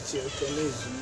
teacher, colégio.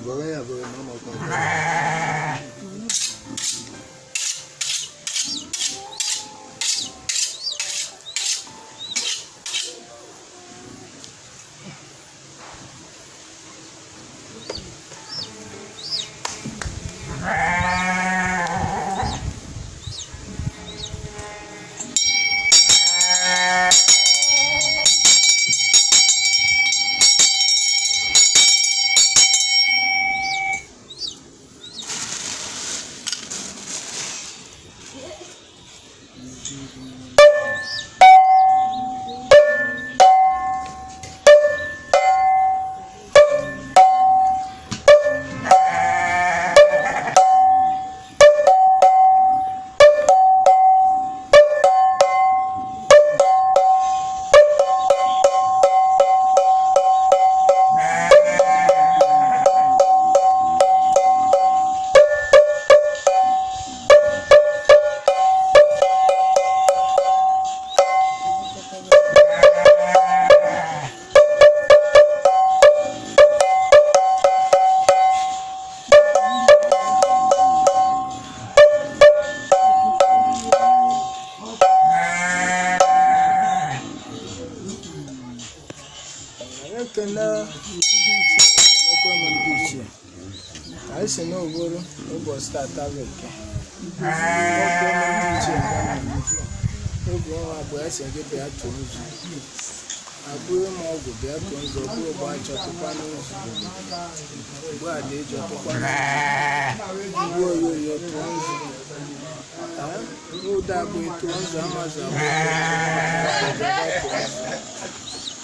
Agora é, agora é normal. nsogbu bịa tụọ nzọ kwuo ụgbọ a chọtụkwana nsogbu ugbu a na-eji ọtụkwana ugbu oyoyo tụọ nzọ n'ụda abụ tụọ nzọ amazụ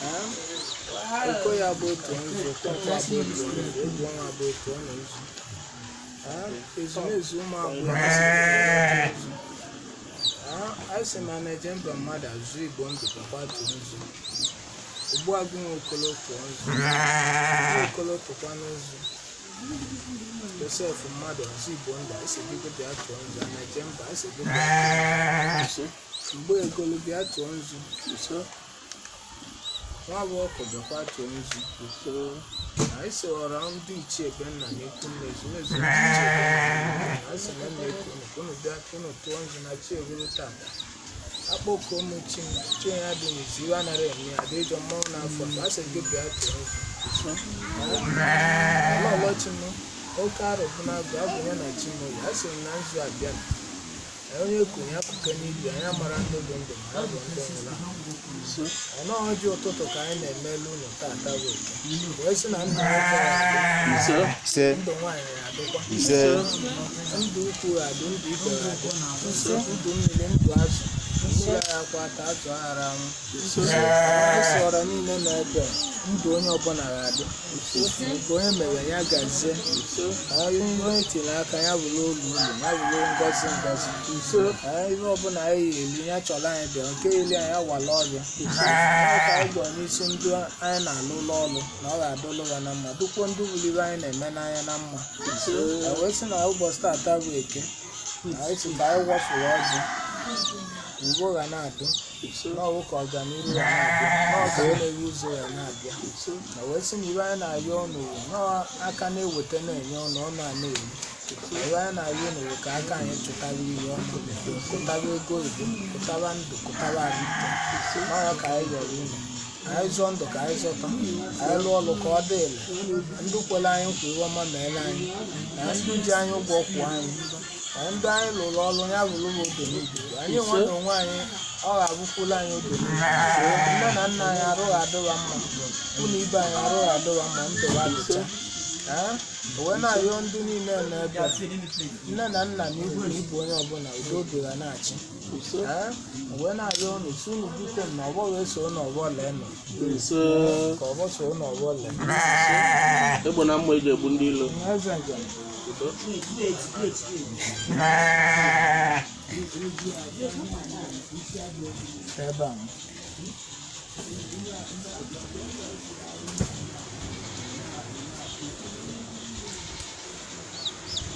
abụ oko ya bụ tụọ nzọ kpọkwa bụ tụọ nzọ egwu ọnwa bụ tụọ nzọ ezumezu ụmụ agbụrụ asị m na eje mba mmadụ azụ igbo ndụ kakwa tụọ nzọ Ogbuagụ nwe ọkọlọtọ ọzọ ọkọlọtọ kwanụ ọzọ Josef mmadụ ọzọ Igbo nda esebigo bịa tụọ nzọ na-eje mba esebigo mgbe egolu bịa tụọ nzọ nwa bụ ọkụ bịakwa tụọ nzọ na ese ọra ndị ichie ebe nna na-ekwu nna ezumezu ndị ichie ebe nna na-ekwu nna unu bịa tụọ nzọ na chi egolu tata akpọkuo m chi m chiya dị n'ezi iwe anaghị emi ya dị ịjọ mmanwụ n'afọ a sị gị bịa tụọ ọlọchi m oke arụ bụ na agụ abụ ya na chi ya oyi m na nzu abịa onye konye akụkọ n'ibi anyị mara ndị bụ ndụ ma ya bụ ndị nwụrụ ọnụ ọjị ụtụtụ ka anyị na-emelu eme ụlọ taa bụ oke wee sị na ndụ nwoke ndụ nwaanyị adịkwa ndụ ukwu adị ndụ ikpere adị ndụ mmiri ndụ azụ akwa ka a tụghara m ụsọrọ niile na-ebe ndụ onye ọbụla ga-adị nke onye mere ya gazie onye e tinyere aka ya bụrụ olu ụlọ ya bụrụ ngozi ngozi ihe ọbụla anyị eri ya chọrọ anyị bịa nke eli anyị awala ọrịa ka anyị gwọ n'isi ndị anyị na-alụ ụlọ ọrụ na ọ ga-adịlụ ya na mma dukwo ndị wuliri anyị na-eme n'anya na mma wee sị na ụbọchị tata bụ eke anyị tụta anyị wafụrụ ọjị ugbua ga na-adị n'ọwụ ka ọganihu ya na-abịa na-ewu ụzọ ya na-abịa na wee sị na ibe anyị na-ayọ ọnụ aka na-eweta na-enye ọnụ ọnụ a na-eru ibe anyị na-ayọ ọnụ ka aka anyị chụtara ihe ọnụ kụtara ego ibu kụtara ndụ kụtara alite n'ọya ka anyị yọrọ unu anyị zụọ ndụ ka anyị zọta anyị lụọ ọrụ ka ọ dị ele ndụ kwere anyị nkwa ihe ọma meere anyị na ndụ ji anyị ụgwọ kwụọ anyị ndị anyị lụrụ ọrụ ya lụrụ m oge anyị nwanyị onwe anyị ọ ga-abụkwula anyị oge nne na nna anyị arụghị adịwa mma ụlọ ibe anyị arụghị adịwa mma ndụwa dịcha na ayọ ndị niile nọ ebe a nne na nna na ibu na ibu onye ọbụla udo oge ga na-achị wena ayọ unu si unu bute na ọgbọ wee so na ọgbọ lee nọ ka ọgbọ so na ọgbọ lee egbo na mma eji egbu ndị ilo eze ebe a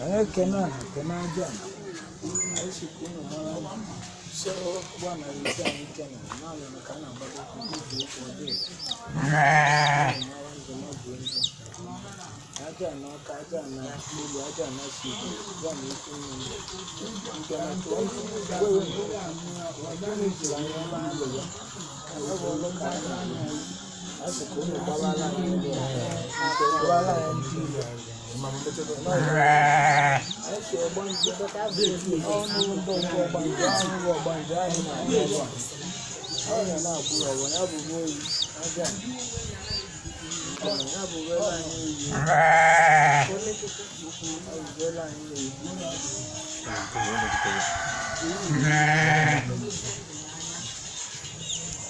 Kena kena aja. Aishi kuna mwana. Sio bwana alikuwa anitana. Mali nakana bado kujua kwa hiyo. Aja na kaja na kuli aja na siku. Bwana yuko ni kana tu. Wewe ndio wajani jirani wangu. Kwa hiyo kana. Asi kuna bala la. Bala la. Yeah.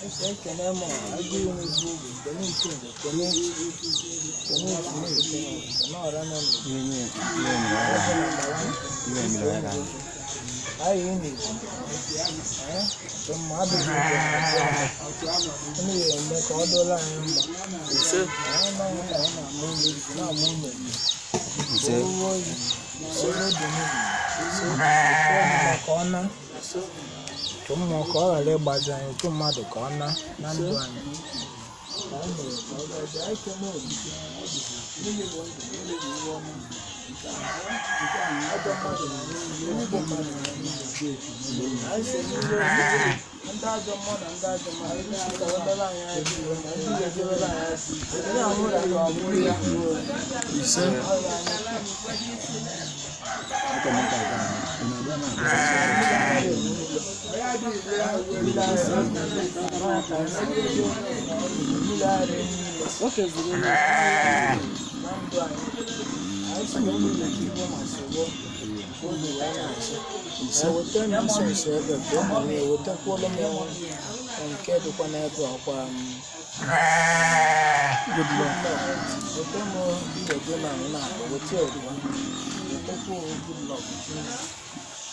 Ese ekene mɔ adi mi bu kɔmi ntu kɔmi kɔmi ntu kɔmi ɔra nɔ mi. Iye mi iye mi la yɛrɛ iye mi la yɛrɛ. Ayi yi mi ɛ tɔmɔ abi mi kɔ ɛmi yɛ mɛ kɔ ɔdɔ la yɛ mɔ. Nse. Ɛn na yɛ na yɛ na mu mi na mu mi. Nse. Owó yi owó dunu yi. Nse. Kɔ ɔna. Nse. chụ mmụọ ka ọ ghara ịgbazi anyị chụ mmadụ ka ọ na na ndụ anyị Oke zuru na ndụ anyị, anyị si na ụmụ Naịjirịa ma soro oge wee na-achị. Eweta m Jisọs ebe bụ ọ mara ewetakwuola m ọnwa nke dịkwa n'ebe ọkwa m. Good luck. Weta m ndụ gị na nwụna, weta ọdịwa, wetakwa good luck.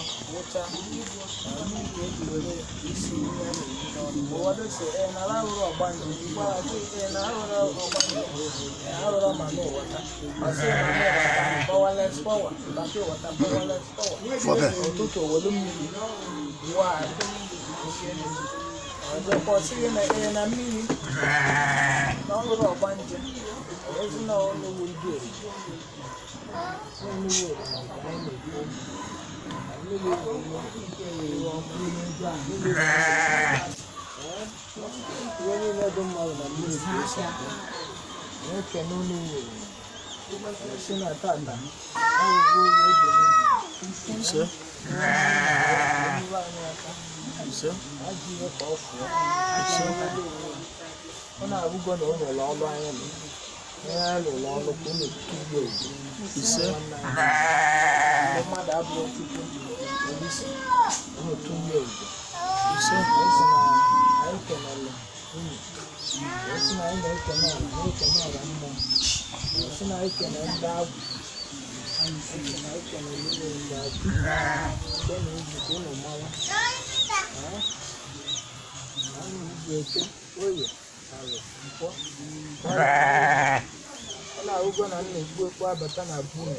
ọkụ wụcha isi arụrụ ọgbanje arụrụ ma n'ụwata pọwales pọwa bata ụwata pọwales pọwa ụtụtụ owelu mmiri waa ọzọkwa ọsịghị na ee na mmiri na ọlụrụ ọgbanje ozi na ọlụwu ndị oyi 哎，我那都买了，你啥钱？我要电动车，我现在大男。行。行。那几个好使，现在都我那五个都都老乱了。alụrụ ọnụ ka unu kirie ise ndị mmadụ abụọ tupu polisi unu kirie ogo ise esi na anyị kenele unu esi na anyị na-ekene ala na-ekene ala mmụọ esi na anyị kene ndị agwụ esi na anyị kene niile ndị agwụ nke na iji ka unu mawa anyị ugwu eke oye ọ na-ahụgo na m na-ekpu abata na bunu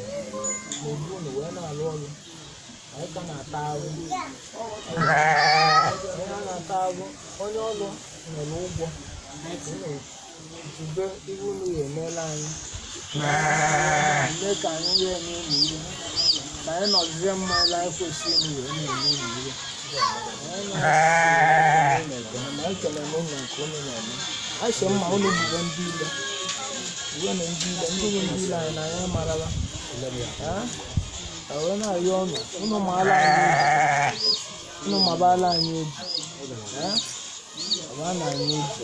na bunu wee na-alụ ọrụ anyị ka na-ata ahụ onye a na-ata ahụ onye ọrụ nwere ụgwọ jube ihe unu ya emeela anyị mee ka anyị wee n'ụlọ ụmụ ihe ka anyị nọzie mma ele anyị kwesịrị unu wee na-eme ụmụ ihe ekele m nke unu na-eme asị mma ụlọ bụba ndị ile uwe na ndị ile ndị bụ ndị ile anyị na anya marala wee na-arịọ ha? ụnụ maala anyị ụnụ mabala anyị obi ọba na anyị obi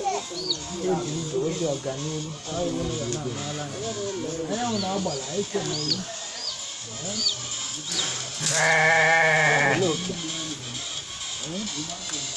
obi ibe obi ọganihu anyanwụ na-agbara anyị kenere Thank ha?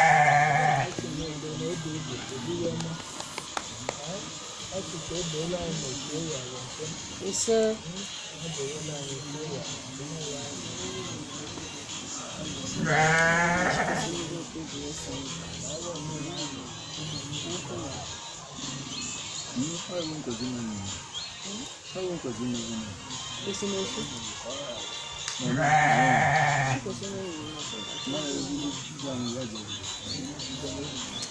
isso Não não. não. não é Não, hum? eu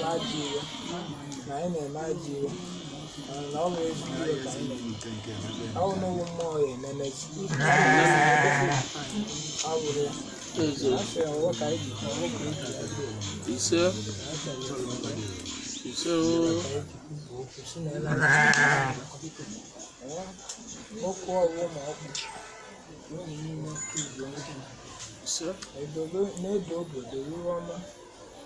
na-aji iwe na anyị na-eme aji iwe na ọ bụ ezi iwe ka anyị ọ bụ n'ụlọ mmụọ ya ememezi ọ bụrụ ya afọ ka anyị ji ọwụ ka anyị ji ise ise ooo okwu ọwụ ma ọkụ n'oge niile ise n'edo obodo iwe ọma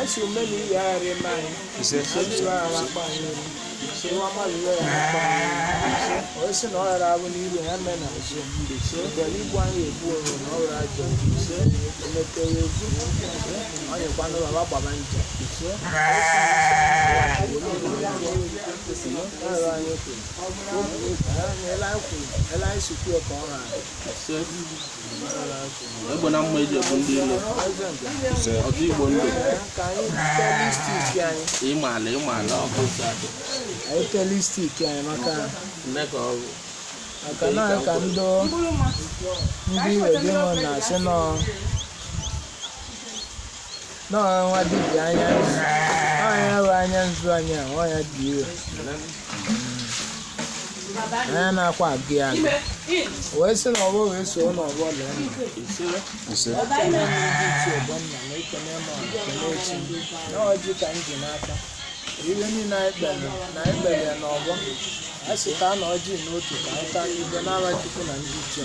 aṣọ mẹ́lì ìyá rẹ̀ máa ń ṣe ṣe ara pa ẹ̀rọ ṣe wọ́n máa lè rẹ̀ pa ẹ̀rọ ó sì náà rà wọn ní ìlú ẹ̀mẹ́ náà ṣe ṣe pẹ̀lú ìbú àwọn no that's why you pay ẹlá ìsìnkú ọkọ̀ ọ̀rọ̀ àṣẹ ẹgbẹ́ náà mọ ẹjẹ ọdún dé lọ ọdún ìgbò ńlò ìmàlà ìmàlà ọkọ̀ sáà anyị kele stiki anyị maka maka na ka ndị ndị wedi mụ na-asị nọ nọọ nwa dibịa anya anyị nzu anyị a ọ ya dị anya na-akwa ya wee sị na ọgbọ wee soo na ọgbọ lee na ọjị ka m ji n'aka iwe niile anyị kpere na anyị kpere na ọgbọ a sị ka a na ọjị n'otu ka anyị ibe na ndị ichie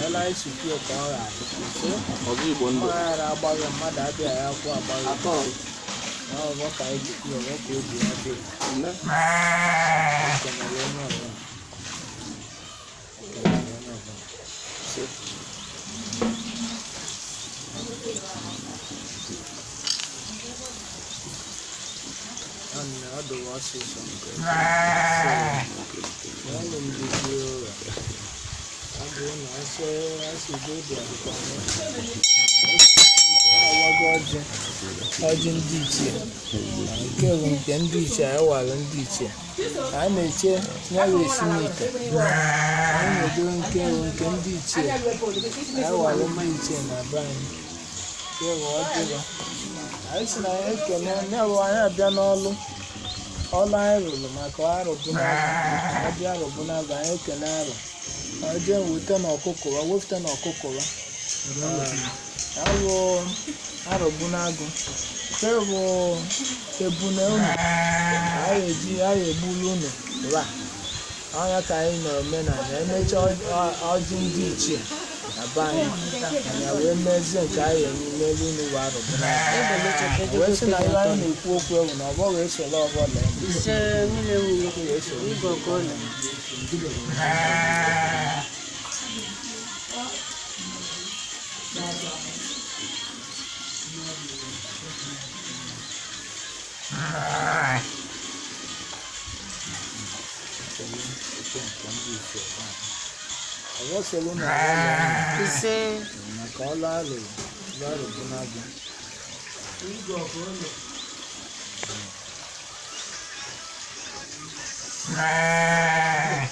na na anyị ka ọ igbo ọ ghara agbaghị mmadụ akwụ Não, eu vou cair de cima, eu vou Another was his abụna asụ asụgobi ọjị ọjị ndị ichie nke bụ nke ndị ichie anyị ndị ichie a na-eche nyawa esi n'ite anyị na-edo nke bụ nke ndị ichie anyị wara ndị ichie na be anyị si na anyị ekene ya bụ anyị abịa n'ọlụ ọlụ anyị rụrụ maka arụ bụ n'arụ anyị ekene arụ je weta na ọkụkọ wa wepụta na ọkụkọ wa alụ arọgbu n'agụ tebụ ebuna unu anyị eji egburu unu ra ọnya ka anyị na-eme na emecha ọjị ndị ichie na be anyị wee mezie nke anyị emelu unu wa si na anyị na-ekwu okwu ewu na ọgbọ Awasolo na ọla. Ise. Maka ọla alụ lọrụ Ah!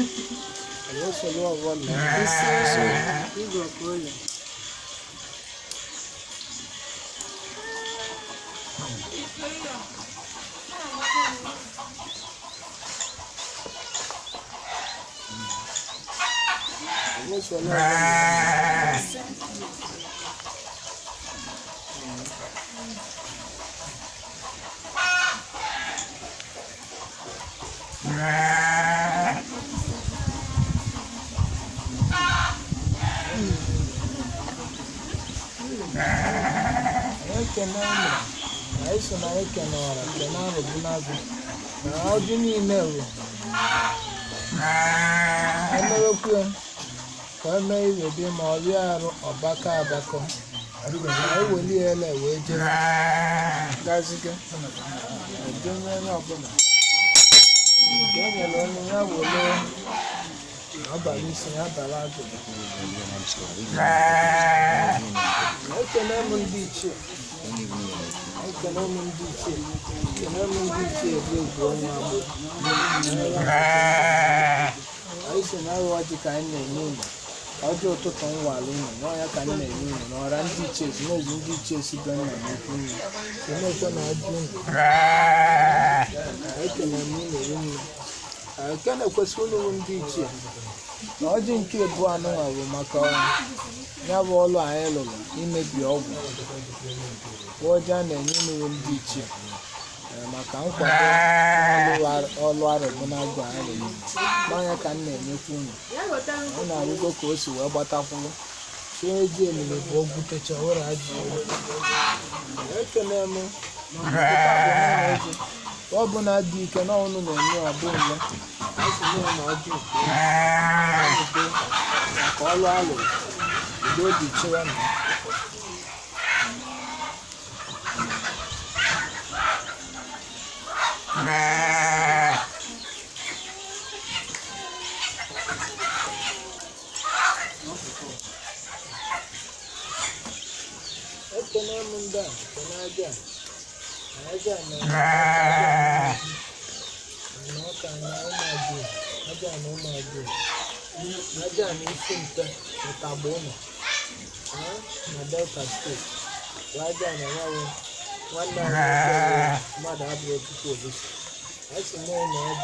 Ela falou a avó mesmo. Ah. Isso, gente. Igual coisa. Ela falou a avó mesmo. Ah! ah. ekene ụmụ na eso na ekene ọra kene arụbunagụ na ọdụ niile wụ emewekwue ka emee iwe dị ma ọrịa arụ ọbaka abakọ eweliela wee jee gaziga edemere ọbụla nke e nyere onye ya welee abalị isi ya abalị agụ ekele m dị iche. ekele ụmụ ndị ichie na ọjị ka anyị na-enye unu na-enye n'ọra ndị ichie ndị ichie si na ajụ unu ụmụ ndị ichie na nke bụ anụnwa bụ maka ya bụ ọlụ anyị lụrụ imebi ọgwụ ọjị a na-enye n'ụlọ ndị ichie eh, maka nkwado ọlụ arụbụ na agụ arụghị n'anya ka m na-enyekwa unu ọ na-arụgo ka o si wee gbatakwụrụ chie eji elele bụ ogwutecha ụra ajụ ekele m ọ bụ na dị ike na ọnụ na-enye ọbụ ọlụ dị na Kena munda, kena aja. Aja, Naka na umaju. Aja na umaju. Aja ni sinta, utabona. Ha? Madel kastu. Waja na wawe. wannan ba da abu ya fito da shi aiki mai na abu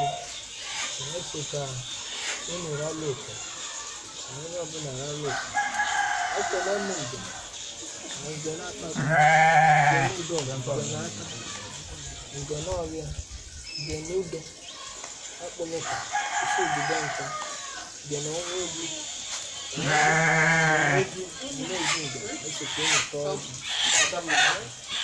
da ake ka inu ralo ka wani abu na ralo ka ake lamun da mai gana ta su gani don gana ta gana ọrịa gana udo akpọlọka isi obodo nka gana ọnwa egwu Thank you.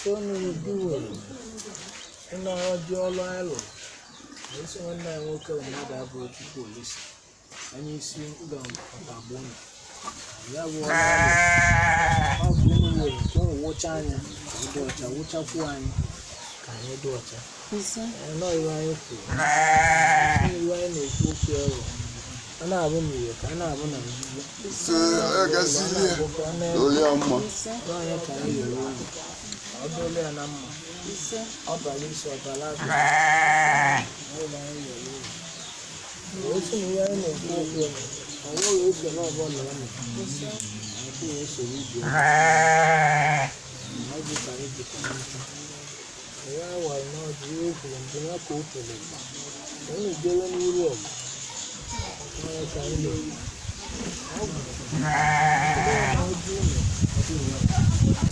Tony Udiwelu nna Ojiọlụ Alu na isi nwanne ya nwoke mmadụ abụọ Chukwu polisi onye isi Ọkagbona ya bụ ọkụ ka ọ wụcha anya ọcha wụchakwuo anyị ka anyị dị ọcha anọghị anyị kwuru anyị na-ekwu okwu ọrụ a na-abụ n'ire ka a na-abụ na ka anyị ụlọ ọdún ilé ọ̀nà mọ̀ ọba yìí sọ ọba lábẹ́ ọ̀rọ̀ ayé yẹ̀ lórí òun sì ń yẹ́ ẹ̀nà ìlú ọ̀gbẹ́ ọ̀nà àwọn òwe ìfẹ́ náà bọ̀ lọ́wọ́ mi àti ìwé ìṣòro ìdí ọ̀nà ọ̀gbẹ́ kàrí ìdí kan ẹ̀yà àwà iná ọdún yóò fi ìdí náà kó tẹ̀lé gbà òun ìgbélé ní wúlò ọ̀gbà ọ̀rọ̀ kàrí lórí ọ̀gbà ọ̀gbà ọdún ọ̀gbà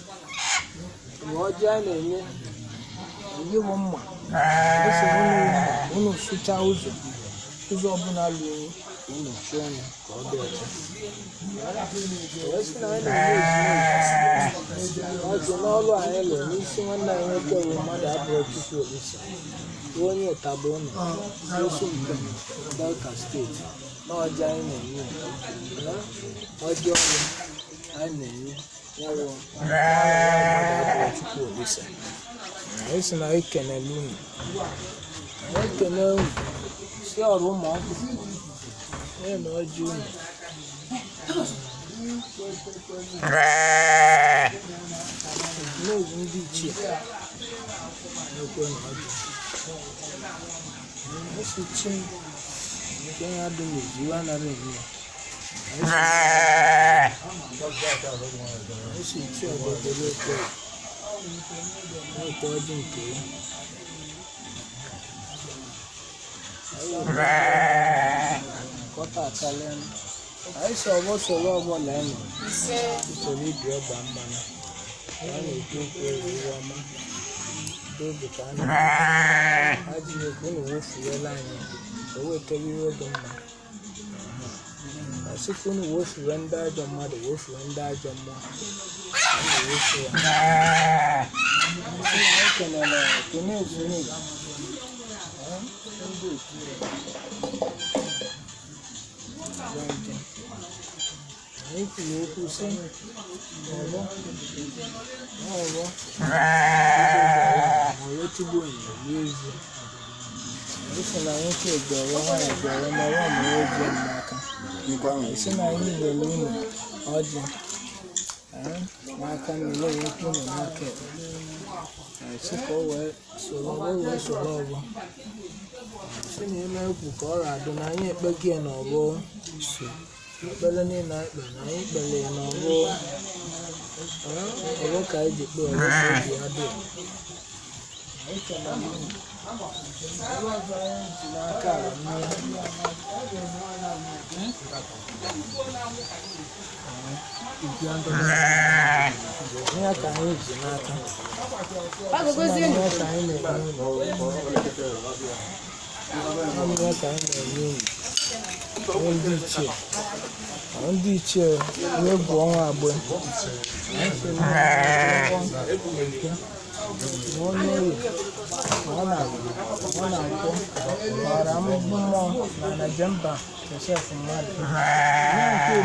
na ọjị a na-enye enye m mma esi unu sụcha ụzọ ụzọ ọbụla lụrụ unu chụọ ya ka ọ dị ọcha ọjị n'ọlụ anyị lụrụ n'isi nwanne anyị nwoke bụ mmadụ abụọ tupu olisa onye ụtaba ụnụ n'osu mpe delta steeti na anyị na-enye ọjị ọrụ anyị na-enye Ese na eke na lumi. Eke na umi. Si ọrụ ụmụ akwụkwọ. Onye na ọjị umi. N'oge ndị ichie. N'ekwe na ọjị. Esi chi nke ya dị n'ezi, iwe anaghị eme ya. si nke ya anyị si ọgbọ soro ọgbọ na usoro ibi ọgba mmanụ ya na-ekwu okwu eriri ọma n'oge ka a na-ajụ ekwu na o wefurela anyị o wetara ihe dị mma na sukuu no wofiri wɔn da adwa mu ade wofiri wɔn da adwa mu ɛna wofiri wɔn ɛna ɛkɛ na na kene ekene ɛn ɛnbi ekure ɛgbɛnti eku eku sɛ ɔwɔ ɔwɔ ɔwɔ ti bo yin yie zi ɛfɛ na wɔn ti ɛgbɛ wɔn a si na anyị n'aka mmiri nwoke ka ọ wee soro o wee soro si na ime ukwu ka ọ adụ na anyị ekpego ya na so ekpere niile na anyị kpere ya na ka anyị ji kpee ọgbọ ka adị ihe anyị ji n'aka anyị na-enye enyi ndị ichie ndị ichie na-egwu ọnwa agbe ọ na-akpọ gbara mmụọ na najemba josef mmadụ nke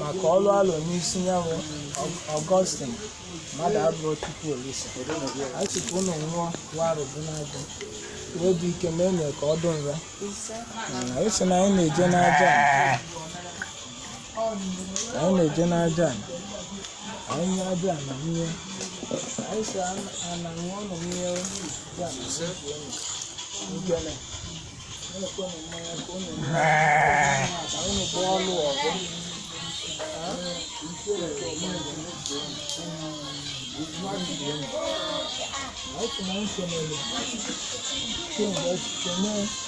maka ọlụ alụ n'isi nyanwụ ọgọstin mmadụ abụọ tupu olisi achịpụ ụlọ nwụọ warụ bụ n'agụ obi ike ma enye ka ọ dị nra esi na anyị na-eje n'aja anyị na-eje n'aja anyị aja na nwunye Đấy sao mà mà ngon nồng nhiều Dạ mình xếp lên Đúng chưa này Nó con nồng mè con nồng mè Cháu nó bò lùa con Đó Đúng chưa là chỗ mè của cái này Kìa này kìa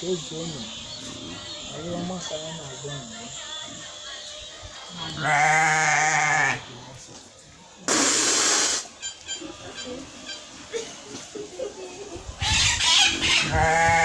Chegou, mano. Aí eu amassava na zona. Ah!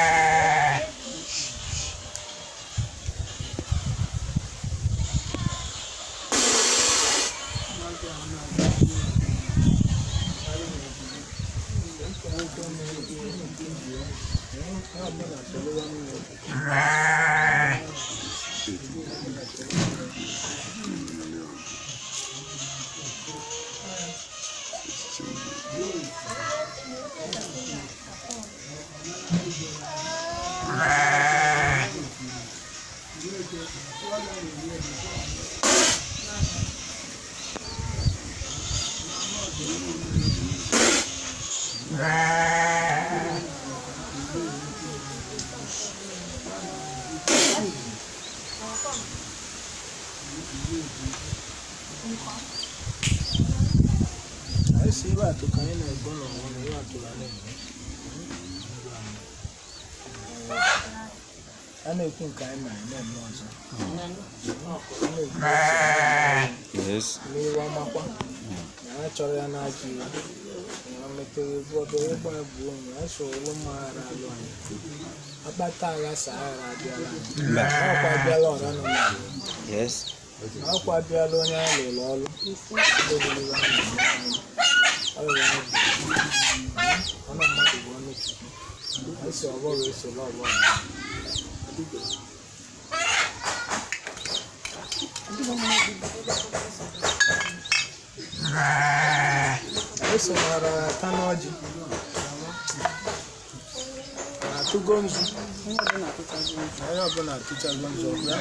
si iwe atụ ka anyị na-ego n'ọnwa na iwe atụla na-eme a na-ekwu nke anyị mara na-eme ọzọ n'iwe ọmakwa na anyị chọrọ ya n'ajụ iwe Perigord ọlọ́pọ̀ àgbòrò aṣọ ọlọ́mọ ara lọ àná. Abáta ara sàárà abíọ́lá. Ọ̀pọ̀ abíọ́lá ọ̀rá nọ nà. Ọ̀pọ̀ abíọ́lá onye alọ̀ lọ́lọ́. Ọlọ́run àgbò. Ọ̀nà mmadụ bụ ọnụ chukwu. Esi ọgbọrọ esoro ọgbọrọ. mara tano ji atụgo nzu onye ọbụla atụchago nzu ọbịa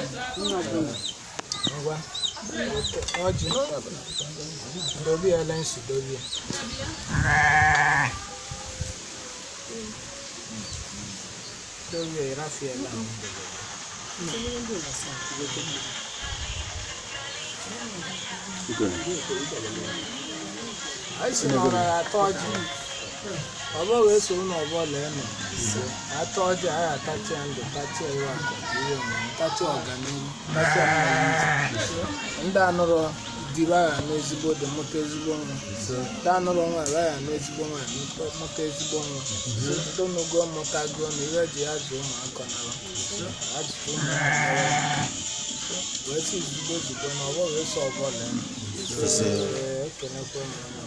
ngwa ọjị dobe ya ele nsu dobe ya dobe ya rafiela Thank esi na ọrara atọ ọjị ọbọ wee so na ọbọ lee nọ atọ ọjị anyị atachia ndụ tachia iwe akụ ihe omume tachia ọganihu tachia ndị anụrụ dịrị agha n'ezigbo dị mụta ezigbo nwa ndị anụrụ nwa ere agha n'ezigbo nwa mụta ezigbo nwa ndị onugo mụta gụọ na ihe ji ya jụ ụmụaka nara ajụjụ ụmụaka wee si zigbo zigbo na ọbọ wee so ọbọ lee nọ ekenekwa e ụmụaka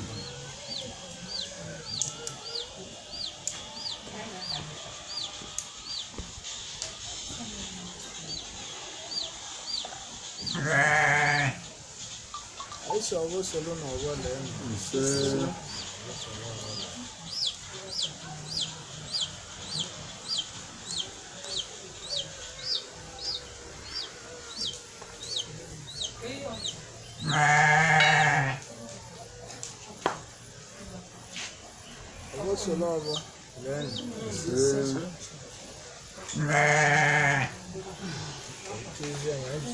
Aisha ọwọ́ sọlọ na ọwọ́ lẹ́nu. Ọwọ́ sọlọ ọwọ́ lẹ́nu. Mẹ́ẹ̀ẹ́.